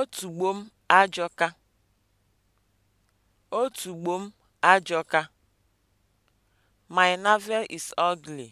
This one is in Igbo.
Otugbo m ajọka. Otugbo m ajọka. My navel is ugly.